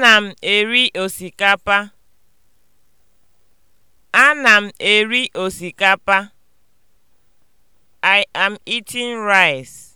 Ana m eri osikapa. Ana m eri osikapa. I am eating rice.